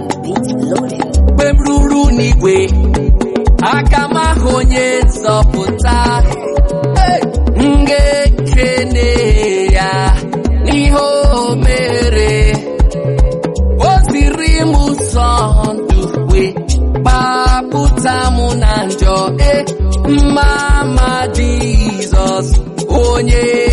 mgbe m ruru n'igwe aka m ahụ onye nzọpụta m ga-ekene ya n'ihe o mere o ziri m ụzọ ndụ wee gbapụta m na njọ e mma ma Jizọs onye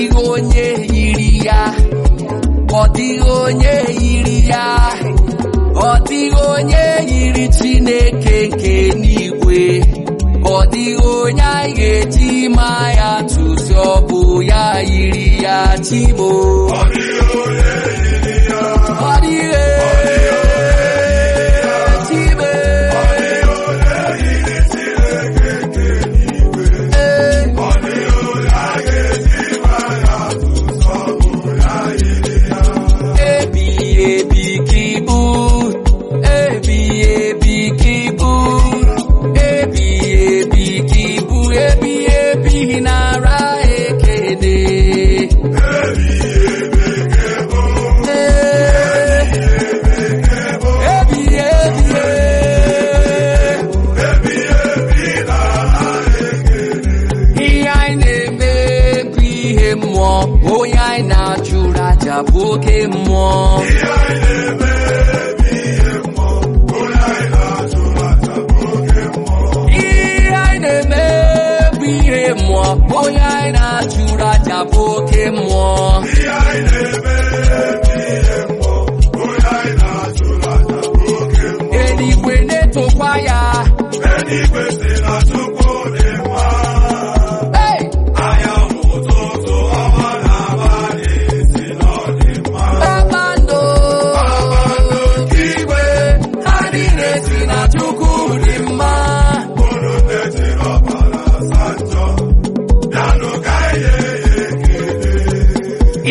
dịghị onye yiri ya ọ dịghị onye yiri ya ọ dịghị onye yiri Chineke nke n'igwe dịghị onye anyị ga-eji ma ya tụzi ọ bụ ya yiri ya chimo chapuke mmụọ ihe anyị na-eme bụ ihe mmụọ onye anyị na-achụrụ achapu oke mmụọ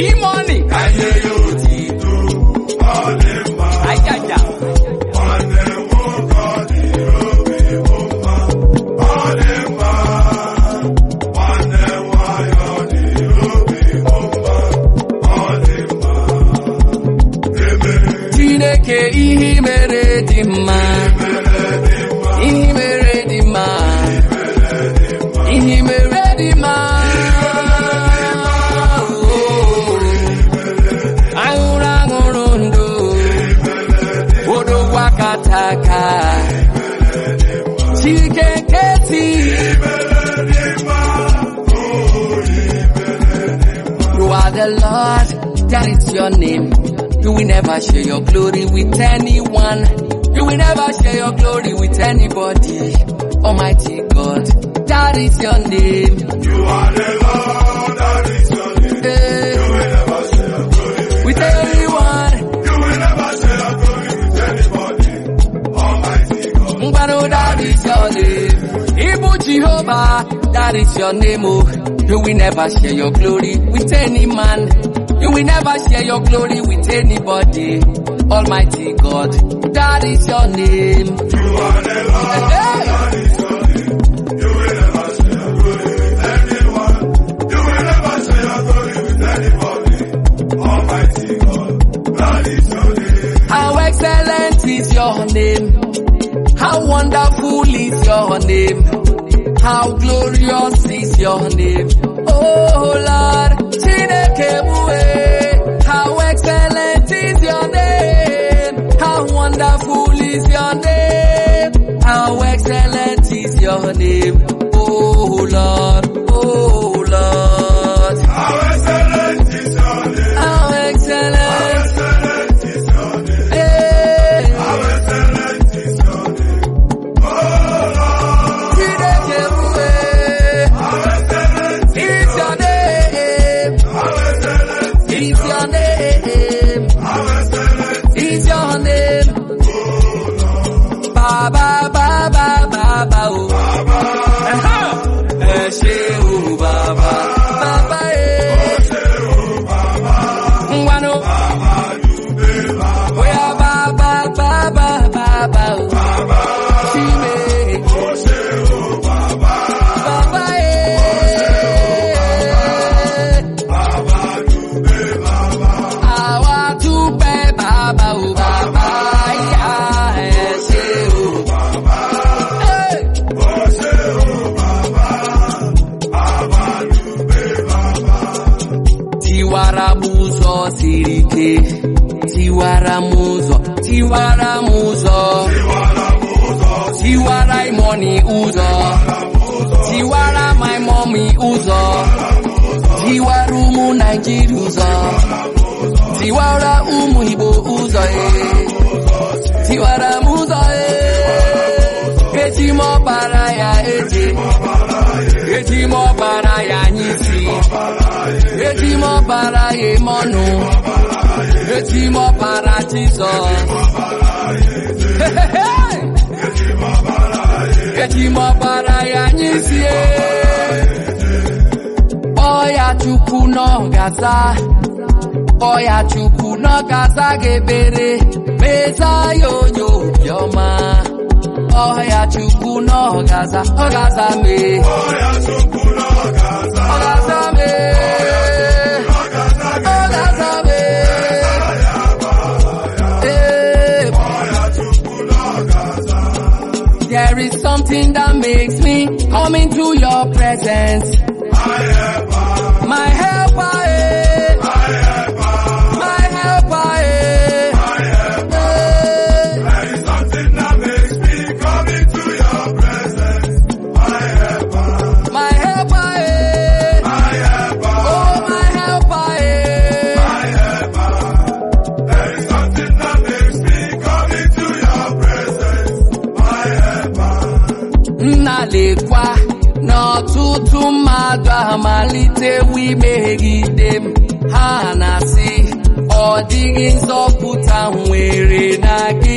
imoni ayé ajaja. ihe mere dị mma. You are the Lord, that is your name. Do we never share your glory with anyone. Do we never share your glory with anybody. Almighty God, that is your name. You are the Lord. Jehovah, that is your name, oh. You will never share your glory with any man. You will never share your glory with anybody. Almighty God, that is your name. You are is your Hey. How excellent is your name? How wonderful is your name? how glorious is your name. Oh Lord, Chineke mue, how excellent is your name. How wonderful is your name. How excellent is your name. ike tiwara m ụzọ tiwara m ụzọ tiwara imoni ụzọ tiwara my mommy ụzọ tiwara ụmụ Naịjirịa ụzọ tiwara ụmụ Igbo ụzọ tiwara m ụzọ eji m ọbara ya eje. eji m ọbara ya anyị isi eji m ọbara ya eme ọnụ echi ọbara Jizọs echi ọbara ya nyezie kpọọ ya Chukwu n'ọgaza kpọọ ya n'ọgaza ga-ebere meza ya onye obiọma kpọọ n'ọgaza ọgaza mee ọgaza mee It's something that makes me come into your presence. My helper. My helper, eh. My helper. malitewu imegide m ha na-asị ọ dịghị nzọpụta nwere na gị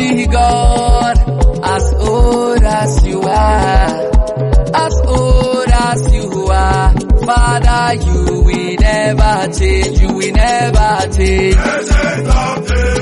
see God as old as you are, as old as you are. Father, you we never change, you we never change.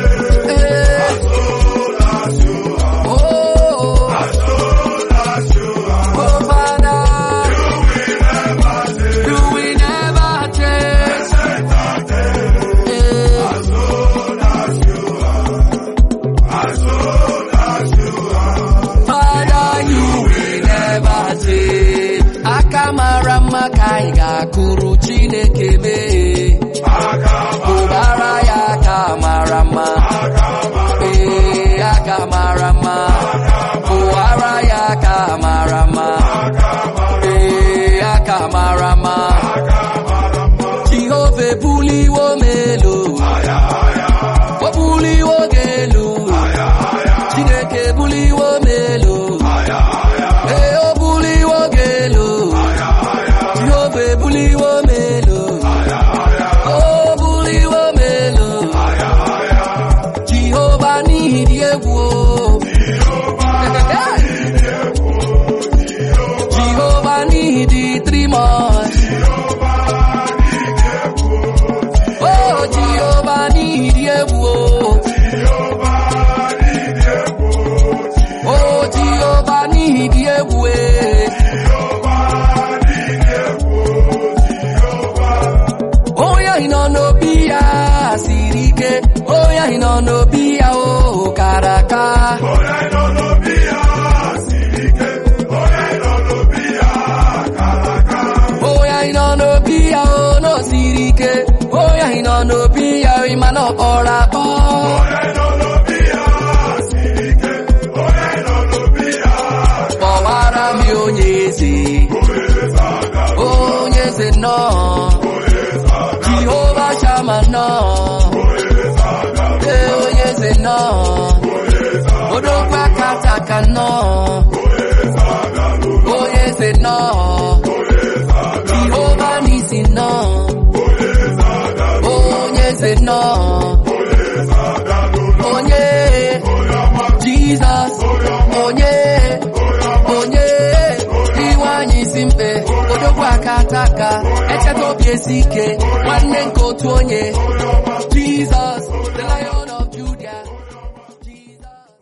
akụrụ Chineke mee ụbara ya aka mara mma ee aka mara mma ụwara ya aka mara mma ee aka mara mma Jehova ebuliwo m elu o buliwo gị elu Chineke ebuliwo m elu nọ ya o kara aka onye nọ n'obi ya ike onye nọ n'obi ya onye ya no onye ya ọkpọrọ akpọ onye ya onye ya kpọwara m onye eze onye eze nnọọ nọ odogwu aka nta ka nọ onye eze ọ jehova n'isi nọ onye se nọ onye jizọs onye onye iwe anyị isi mkpe ka echeta obi ike nwanne nke otu